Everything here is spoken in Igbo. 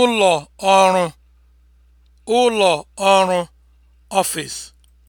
ụlọ ọrụ ụlọ ọrụ ọfịs.